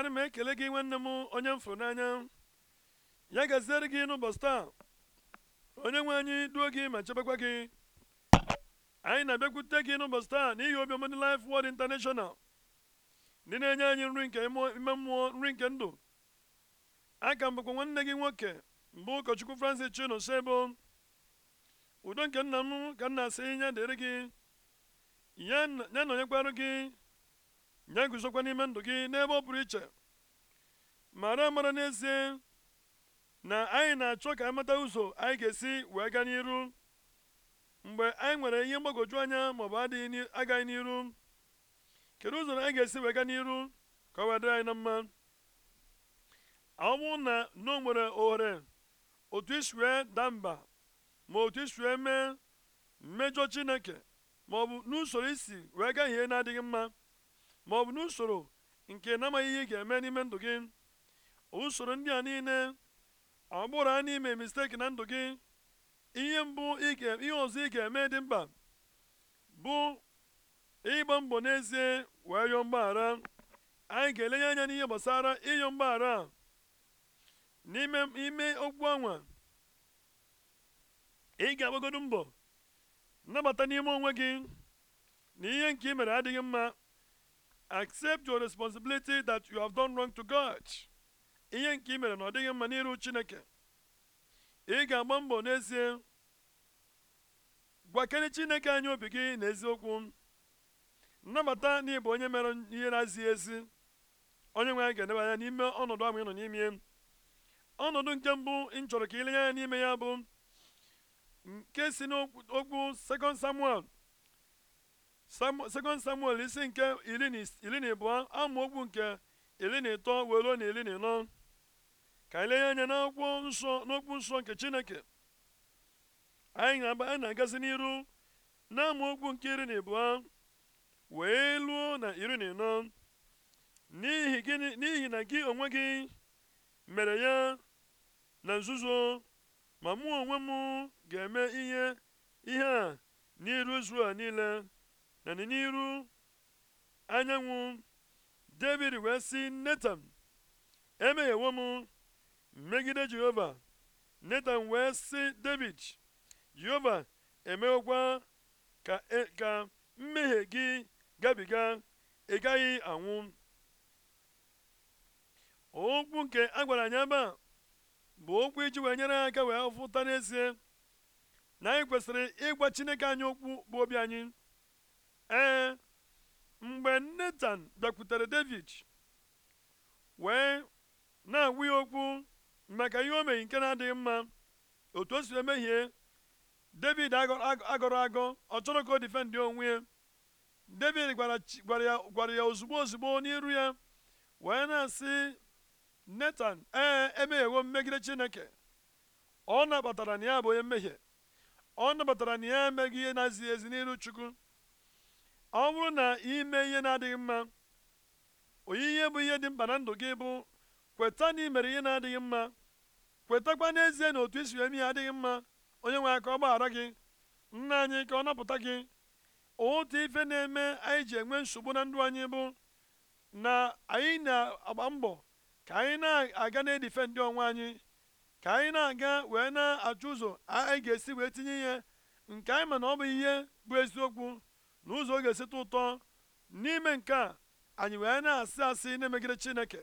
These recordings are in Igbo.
ana m ekele gị nwanne m onye m fụrụ n'anya ya gaziere gị n'ụbọchị taa onye nwe anyị duo gị ma chebekwa gị anyị na-abịakwute gị n'ụbọchị taa n'ihi obiọma ndị lif Word International ndị na-enye anyị nri nke ime mmụọ nri nke ndụ aka m bụkwa nwanne gị nwoke mbụ ụkọchukwu Francis Chinosebo udo nke nna m ka na asị ya dịrị gị ya na onye kwarụ gị nye guzokwa n'ime ndụ gị n'ebe ọ pụrụ iche mara mara n'ezie na anyị na-achọ ka anyị e mata ụzọ anyị ga-esi wee gaa n'iru mgbe anyị nwere ihe mgbagwoju anya maọbụ adịghị agaghị n'iru kedu ụzọ anyị ga-esi wee gaa n'iru ka ọ wee dịrị anyị na mma ọ na na nwere ohere otu isi damba daa mba ma otu isue mee mmejọ chineke maọbụ n'usoro isi wee gaa ihe na-adịghị mma ma ọ bụ n'usoro nke namaghị ihe ị ga-eme n'ime ndụ gị usoro ndị a niile ọ bụrụ na ime misteki na ndụ gị ihe mbụ ihe ọzọ ị ga-eme dị mkpa bụ ịgba mbọ n'ezie wee yọọ mgbaghara anyị ga-elenye anya n'ihe gbasara ịyọ mgbaghara n'ime ime okwu ọnwa ị ga-agbagodo mbọ nnabata n'ime onwe gị na ihe nke ị mere adịghị mma accept your responsibility that you have done wrong to God ihe nke i mere na ọ dịghị mma n'iru Chineke ị ga-agba mbọ n'ezie gwakere Chineke anyị obi gị n'eziokwu nnabata na ịbụ onye mere ihe na-azighị ezi onye nwe anyị ga-edebe anya n'ime ọnọdụ ahụ ị nọ n'ime ọnọdụ nke mbụ ị chọrọ ka ị lenye anya n'ime ya bụ nke si n'okwu 2 Samuel sekọnd samuel isi nke iri na ịbụọ amaokwu nke iri na ịtọ were na iri na ịnọ ka anyị lenye anya n'akwụkwọ nsọ n'okwu nsọ nke chineke anyị na-agazi n'iru na amaokwu nke iri na ịbụọ wee luo na iri na ịnọ n'ihi na gị onwe gị mere ya na nzuzo ma mụ onwe m ga-eme ihe ihe a n'iru a niile na n'iru anyanwụ david wee sị netan emeghewo m megide jehova netan wee sị david jehova emeghokwa ka, e, ka mmehie gị gabiga ị gaghị anwụ okwu nke a gwara anyị ebe a bụ okwu iji wee nyere aka wee fụta n'ezie na anyị kwesịrị ịgwa chineke anyị okwu bụ obi anyị ee eh, mgbe netan bịakwutere david wee na agwụ ya okwu maka ihe o mehi nke na-adịghị mma otu o si emehie david agọrọ agọ ọ chọrọ ka o difendị onwe ya david gwara ya ozugbo ozugbo n'iru ya wee na-asị netan ee eh, emeghewo mmegide chineke ọ nabatara na ya bụ onye mmehie ọ nabatara na ya emeghị ihe na-ezighị ezi n'iru chukwu ọ bụrụ na ime ihe na-adịghị mma onyinye bụ ihe dị mkpa na ndụ gị bụ kweta na ị mere ihe na-adịghị mma kwetakwa n'ezie na otu isi eme ihe adịghị mma onye nwe aka ọ gbaghara gị nna anyị ka ọ napụta gị otu ife na-eme anyị ji enwe nsogbu na ndụ anyị bụ na anyị na-agba mbọ ka anyị na-aga na-edife ndị onwe anyị ka anyị na-aga wee na-achụ ụzọ anyị ga-esi wee tinye ihe nke anyị ma na ọ bụ ihe bụ eziokwu n'ụzọ ụzọ ọ ga-esite ụtọ n'ime nke a anyị wee na-asị asị na-emegide chineke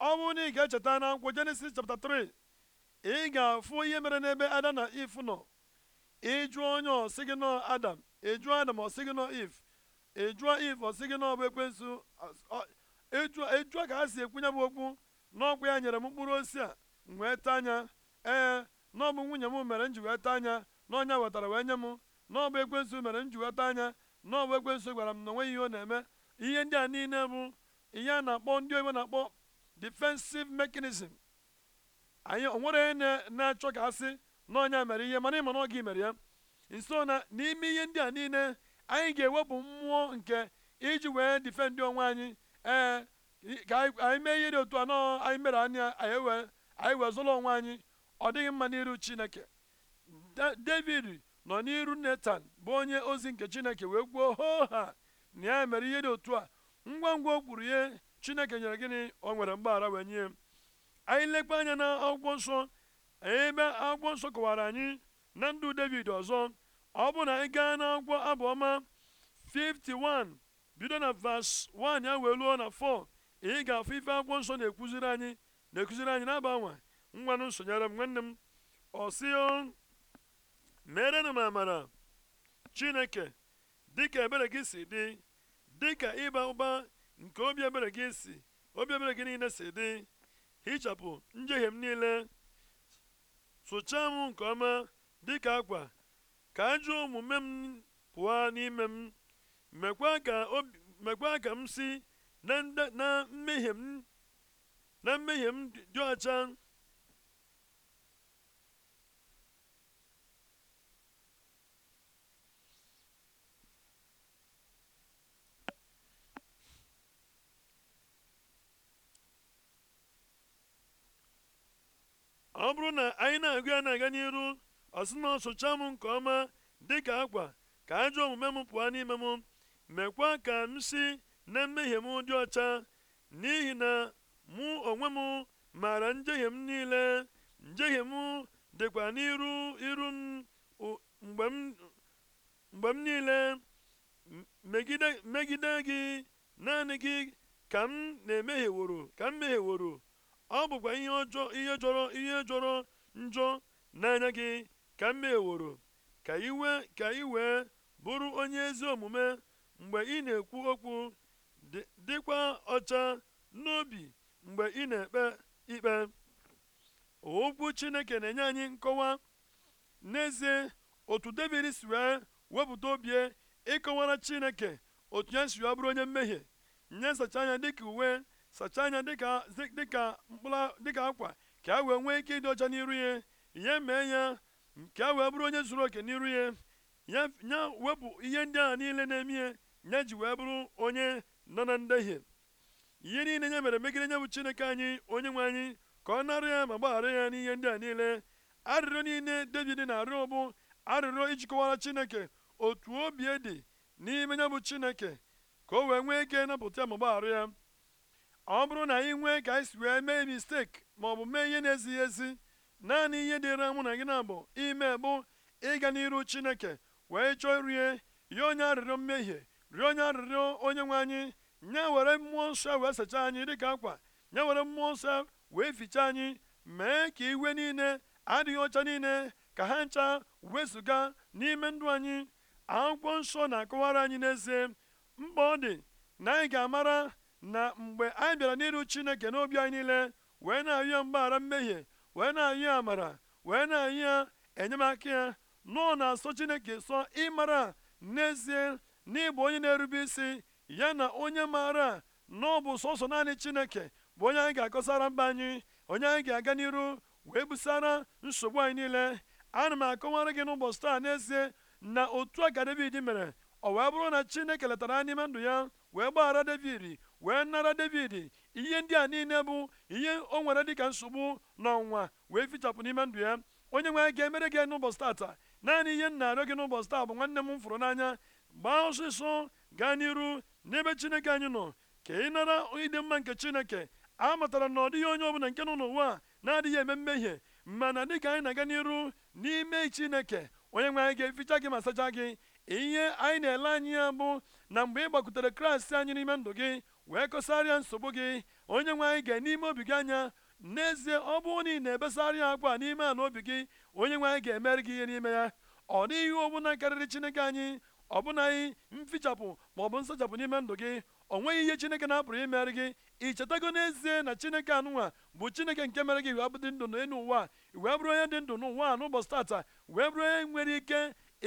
ọ bụrụ na ị ga-echeta na akwụkwọ jenesis chapta 3 ị ga-afụ ihe mere n'ebe ada na if nọ ịjụ onye ọsị gị nọ adam ịjụ adam ọsị gị nọ if ịjụọ if ọsị gị nọ bụ ekwensu ịjụọ ka ha si ekwunye bụ okwu n'ọkwa ya nyere m mkpụrụ osisi a m wee taa anya ee n'ọbụ nwunye m mere m ji wee taa anya n'ọnya wetara wee nye m n'ọbụ ekwensu mere m ji anya n'ọbụ ekwensu gwara m na onweghị ihe ọ na-eme ihe ndị a niile bụ ihe a na-akpọ ndị oyibo na-akpọ defensive mechanism anyị onwere onye na-achọ ka asị na ọnya mere ihe mana ịma na ọ gị mere ya nso na n'ime ihe ndị a niile anyị ga-ewepụ mmụọ nke iji wee difendị onwe anyị ee ka anyị mee ihe dị otu a nọ anyị mere anya anyị wee zụlọ onwe anyị ọ dịghị mma n'iru Chineke David nọ n'iru netan bụ onye ozi nke chineke wee kwuo hoo ha na ya mere ihe dị otu a ngwa ngwa o kwuru ihe chineke nyere gịnị o nwere mgbaghara wee nye anyị lekwa anya na akwụkwọ nsọ ebe akwụkwọ nsọ kọwara anyị na ndụ david ọzọ ọ bụ na anyị gaa n'akwụkwọ abụọma 51 bido na vas 1 ya wee luo na 4 ị ga-afụ ife akwụkwọ nsọ na-ekuziri anyị na-ekuziri anyị na-agbanwe ngwanụ nsonyere m nwanne m ọ ọsịo meerenụ m amara chineke dịka ebere gị si dị dịka ịba ụba nke obi ebere gị si obi ebere gị niile si dị hichapụ njehie m niile sụchaa m nke ọma dịka akwa ka ajụ omume m pụọ n'ime m mekwaa ka m si na mmehie m dị ọcha ọ bụrụ na anyị na-agụ ya na-aga n'iru ọ na ọsụcha m nke ọma dị ka akwa ka ajọ omume m pụọ n'ime m mekwa ka m si na mmehie m dị ọcha n'ihi na mụ onwe m maara njehie m niile njehie m dịkwa n'iru iru m mgbe m niile megide gị naanị gị ka m na-emehieworo ka m mehieworo ọ bụkwa ihe ọjọọ ihe jọrọ ihe jọrọ njọ n'anya gị ka m meworo ka iwe ka i wee bụrụ onye ezi omume mgbe ị na-ekwu okwu dịkwa ọcha n'obi mgbe ị na-ekpe ikpe okwu chineke na-enye anyị nkọwa n'ezie otu david si wee wepụta obi e, ịkọwara chineke otu ya si bụrụ onye mmehie nye nsacha anya dịka uwe sachaa anya dịka dịka mkpụrụ dịka akwa ka a wee nwee ike ịdị ọcha n'iru ya ya mee ya ka a wee bụrụ onye zuru oke n'iru ya ya wepụ ihe ndị a niile na-eme ya ya ji wee bụrụ onye nọ na ndehie ihe niile ya mere megide nye bụ chineke anyị onye nwe anyị ka ọ narị ya ma gbaghara ya n'ihe ndị a niile arịrịọ niile david na-arịọ bụ arịrịọ ijikọwara chineke otu obi dị n'ime ya bụ chineke ka o wee nwee ike napụta ya ma gbaghara ya ọ bụrụ na anyị nwee ka anyị si wee mee mistake ma ọ bụ mee ihe na-ezighị ezi naanị ihe dịra mụ na gị na bụ ime bụ ịga n'iru chineke wee chọọ rie rịọ onye arịrịọ mmehie rịọ onye arịrịọ onye nwe anyị nye were mmụọ nsọ wee sachaa anyị dịka akwa nye were mmụọ nsọ wee fichaa anyị mee ka iwe niile adịghị ọcha niile ka ha ncha wezụga n'ime ndụ anyị akwụkwọ nsọ na-akọwara anyị n'ezie mkpa ọ dị na anyị ga-amara na mgbe anyị bịara n'iru chineke n'obi anyị niile wee na-ayụ ya mgbaghara mmehie wee na-ayụ ya amara wee na anyụ ya enyemaka ya nọọ na-asọ chineke sọ ịmara n'ezie n'ịbụ onye na-erube isi ya na onye maara na ọ bụ sọsọ naanị chineke bụ onye anyị ga-akọsara mba anyị onye anyị ga-aga n'iru wee busara nsogbu anyị niile ana m akọwara gị n'ụbọchị taa n'ezie na otu a ka David mere ọ wee bụrụ na chineke letara n'ime ndụ ya wee gbaghara david wee nara david ihe ndị a niile bụ ihe o nwere dịka nsogbu na wee fichapụ n'ime ndụ ya onye nwe ga-emere gị n'ụbọchị taata naanị ihe m na-arịọ gị n'ụbọchị taa bụ nwanne m m fụrụ n'anya gbaa ọsịsọ gaa n'iru n'ebe chineke anyị nọ ka ị nara ịdị mma nke chineke a matara na ọ dịghị onye ọbụla nke nọ n'ụwa na-adịghị eme mmehie mana dịka anyị na-aga n'iru n'ime chineke onye nwe anyị ga-eficha gị ma sachaa gị ihe anyị na-ele ya bụ na mgbe ị gbakwutere kraịst anyị n'ime ndụ gị wee kọsarịa nsogbu gị onye nwe anyị ga n'ime obi gị anya n'ezie ọ bụrụ na ị na-ebesarịa akwa n'ime ala obi gị onye nwe anyị ga-emere gị ihe n'ime ya ọ dịghị ọbụla karịrị chineke anyị ọbụnaghị mfichapụ bụ nsachapụ n'ime ndụ gị o nweghị ihe chineke na-apụrụ imere gị ị chetago n'ezie na chineke anụnwa bụ chineke nke mere gị wee dị ndụ n'elu ụwa wee bụrụ onye dị ndụ n'ụwa n'ụbọchị tata wee bụrụ onye nwere ike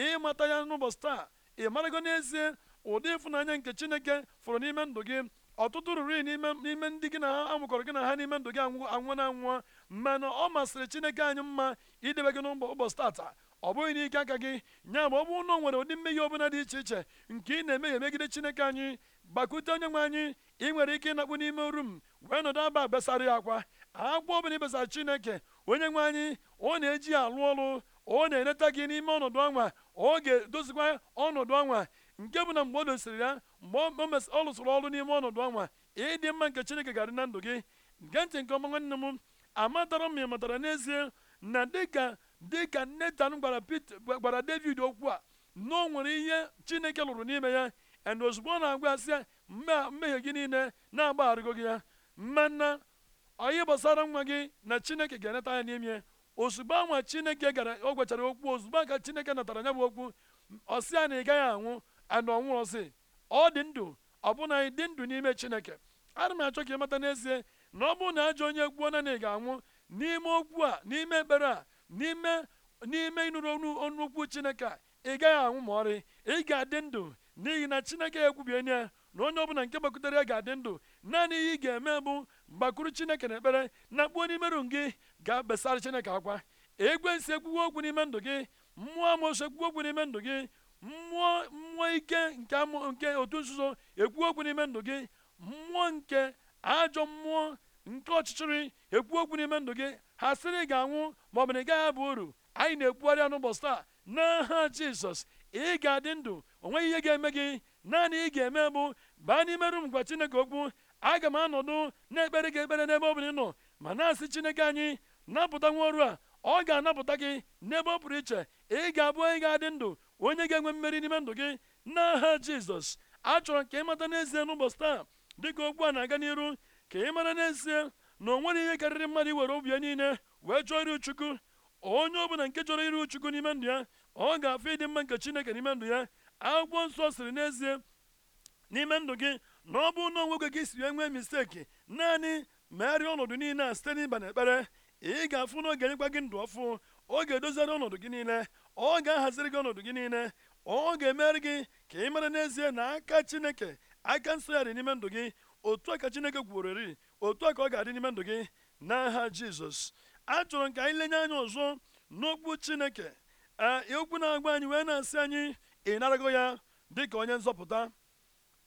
ịmata ya n'ụbọchị taa ị marago n'ezie ụdị ịfụnanya nke chineke fụrụ n'ime ndụ gị ọtụtụ ruru n'ime ndị gị na ha amụkọrọ gị na ha n'ime ndụ gị anwụ na anwụọ mana ọ masịrị chineke anyị mma idebe gị n'ụbọchị tata ọ bụghị n'ike aka gị nya ma ọ bụ ụnọ nwere ụdị mmehie ọbụla dị iche iche nke ị na ya megide chineke anyị gbakwute onye nwe anyị ị nwere ike ịnakpu n'ime oru m wee nọdụ aba besara ya akwa akwa ọbụla ị chineke onye nwe anyị ọ na-eji ya alụ ọrụ ọ na-eneta gị n'ime ọnọdụ ọnwa oge ga-edozikwa ọnọdụ ọnwa nke bụ na mgbe ọ dosiri ya mgbe ọ lụsịrị ọrụ n'ime ọnọdụ ọnwa ịdị mma nke chineke ga-adị na ndụ gị gee ntị nke ọma nwanne m amatara m ịmatara n'ezie na dịka dịka netan gwara gwara david okwu a na o nwere ihe chineke lụrụ n'ime ya and ozugbo ọ na-agwa asị ya mmehie gị niile na-agbagharịgo gị ya mana onye gbasara nwa gị na chineke ga-eneta ya n'ime ozugbo anwa chineke gara o gwechara okwu ozugbo aka chineke natara ya bụ okwu ọsị ya na ị gaghị anwụ ana ọnwụ ọsị ọ dị ndụ ọ bụna dị ndụ n'ime chineke ana m achọ ka ị mata n'ezie na ọ bụrụ na ajọ onye gbuo na ị ga-anwụ n'ime okwu a n'ime ekpere a n'ime n'ime ịnụrụ ọnụ okwu chineke a ị gaghị anwụ ma ọrị ị ga-adị ndụ n'ihi na chineke ekwubienye ya na onye ọbụla nke gbakutere ya ga-adị ndụ naanị ihe ị ga-eme bụ mgbakuru chineke na ekpere na kpuo n'imerụ gị ga besara chineke akwa ekwensi ekwuwe okwu n'ime ndụ gị mmụọ amosu ekwuwe okwu n'ime ndụ gị mmụọ mmụọ ike nke nke otu nzuzo ekwu okwu n'ime ndụ gị mmụọ nke ajọ mmụọ nke ọchịchịrị ekwu okwu n'ime ndụ gị ha sịrị ga anwụ ma ọ bụ na ị gaghị abụ uru anyị na-ekwugharị n'ụbọchị taa n'aha jizọs ị ga-adị ndụ onwe ihe ga-eme gị naanị ị ga-eme bụ baa n'ime rum gwa chineke okwu aga m anọdụ na-ekpere gị ekpere n'ebe ọ bụla ị nọ ma na-asị chineke anyị napụta nwa ọrụ a ọ ga-anapụta gị n'ebe ọ pụrụ iche ị ga-abụ onye ga-adị ndụ onye ga-enwe mmeri n'ime ndụ gị n'aha jizọs achọrọ ka ị mata n'ezie n'ụbọchị taa dịka okwu a na-aga n'iru ka ị mara n'ezie na o ihe karịrị mmadụ iwere obi ya niile wee chọọ iru chukwu onye ọbụla nke chọrọ iru chukwu n'ime ndụ ya ọ ga-afụ ịdị mma nke chineke n'ime ndụ ya akwụkwọ nsọ siri n'ezie n'ime ndụ gị na ọ bụ na onwe gị siri enwe misteki naanị megharịa ọnọdụ niile a site n'ịba ekpere ị ga-afụ na ọ enyekwa gị ndụ ọfụ ọ ga-edoziri ọnọdụ gị niile ọ ga-ahaziri gị ọnọdụ gị niile ọ ga-emere gị ka ị mara n'ezie na aka chineke aka dị n'ime ndụ gị otu a ka chineke gwuworori otu a ka ọ ga-adị n'ime ndụ gị n'aha jizọs achọrọ m ka anyị lenye anya ọzọ n'okwu chineke ee okwu na-agwa anyị wee na-asị anyị ị narago ya dị ka onye nzọpụta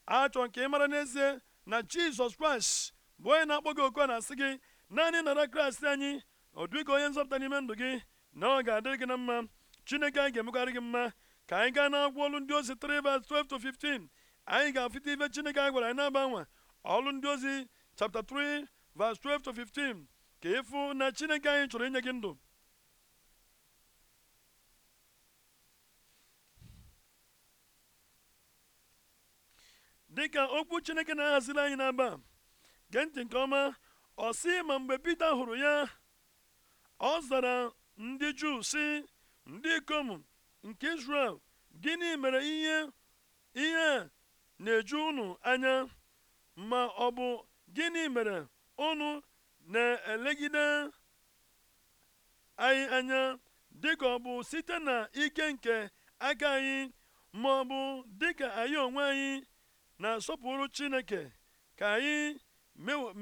achọrọ m ka ị mara n'ezie na jizọs kraịst bụ onye na-akpọ gị oku na-asị gị naanị nara kraịst anyị ọ dịghị onye nzọpụta n'ime ndụ gị na ọ ga-adịrị gị na mma chineke anyị ga-emegharị gị mma ka anyị gaa n'akwụkwọ ọlụ ndị ozi 3 verse 12 to 15 anyị ga-afụta ife chineke anyị gwara anyị na-agbanwe ọlụ ndị ozi chapta 3 verse 12 to 15 ka ịfụ na chineke anyị chọrọ inye gị ndụ dịka okwu chineke na-ahaziri anyị n'aba gee ntị nke ọma ọ sị ma mgbe pita hụrụ ya ọ zara ndị juu sị ndị ikom nke israel gịnị mere ihe ihe na-eju unu anya ma ọ bụ gịnị mere unu na-elegide anyị anya dịka ọ bụ site na ike nke aka anyị ma ọ bụ dịka anyị onwe anyị na-asọpụrụ chineke ka anyị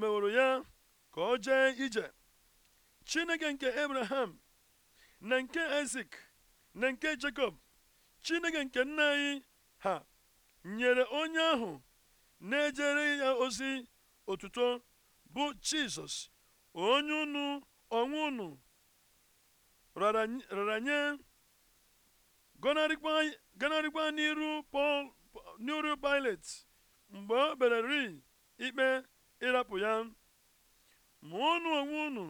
meworo ya ka o jee ije chineke nke abraham na nke isak na nke jacob chineke nke nna anyị ha nyere onye ahụ na-ejere ya ozi otuto bụ jizọs onye unu onwe unu rara nye gọnarịkwa n'iru n'iru mgbe o bere ri ikpe ịrapụ ya ma ọnụ onwe unu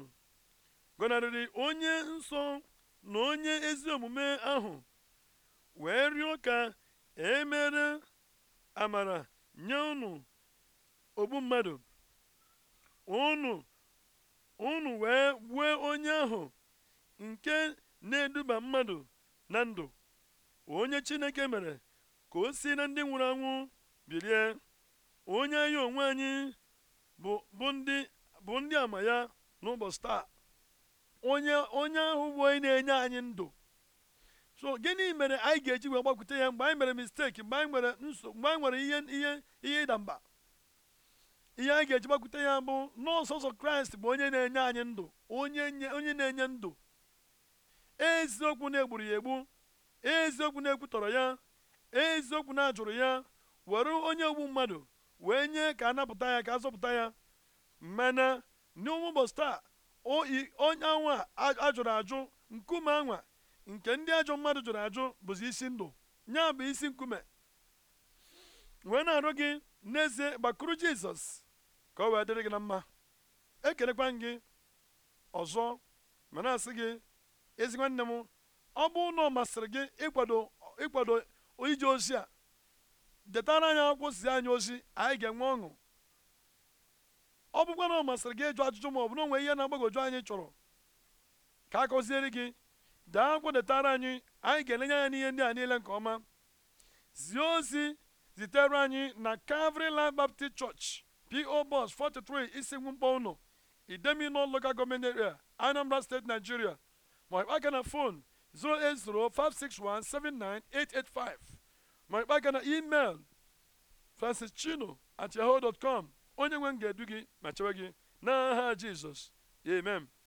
gọnarịrị onye nsọ na onye ezi omume ahụ wee rịọ ka e mere amara nye unu ogbu mmadụ unu unu wee gbuo onye ahụ nke na-eduba mmadụ na ndụ onye chineke mere ka o si na ndị nwụrụ anwụ bilie onye anyị onwe anyị bụ ndị bụ ndị ama ya n'ụbọchị taa onye onye ahụ bụ onye na-enye anyị ndụ so gịnị mere anyị ga-eji wee gbakwute ya mgbe anyị mere misteki mgbe anyị nwere nso mgbe anyị nwere ihe ihe ihe ịda mba ihe anyị ga-eji gbakwute ya bụ n'ọsọsọ kraịst bụ onye na-enye anyị ndụ onye onye na-enye ndụ eziokwu na-egburu ya egbu eziokwu na-ekwutọrọ ya eziokwu na-ajụrụ ya were onye ogbu mmadụ wee nye ka a napụta ya ka a zọpụta ya mana taa onye anwa a jụrụ ajụ nkume anwa nke ndị ajọ mmadụ jụrụ ajụ bụzi isi ndụ nya bụ isi nkume wee na-arụ gị n'ezie gbakwuru jizọs ka o wee dịrị gị na mma ekelekwa gị ọzọ ma asị gị ezi nwanne m ọ bụ na ọ masịrị gị ịkwado ịkwado ije ozi a detara anyị akwụkwọ si anyị ozi anyị ga-enwe ọṅụ ọ bụkwa na ọ masịrị gị ịjụ ajụjụ ma ọ bụ na onwe ihe na-agbagoju anyị chọrọ ka a gọziere gị daa akwụkwọ anyị anyị ga-elenye anya n'ihe ndị a niile nke ọma zie ozi zitere anyị na Calvary Life Baptist Church P.O. bus 43 Isingwu Mkpọ Ụnọ Idemino Local Government Area Anambra steeti Nigeria ma ịkpa aka na fon 08056179885 ma ịkpa aka na email francischino at yahoo dot com onye nwe m ga-edu gị ma chewe gị n'aha jizọs amen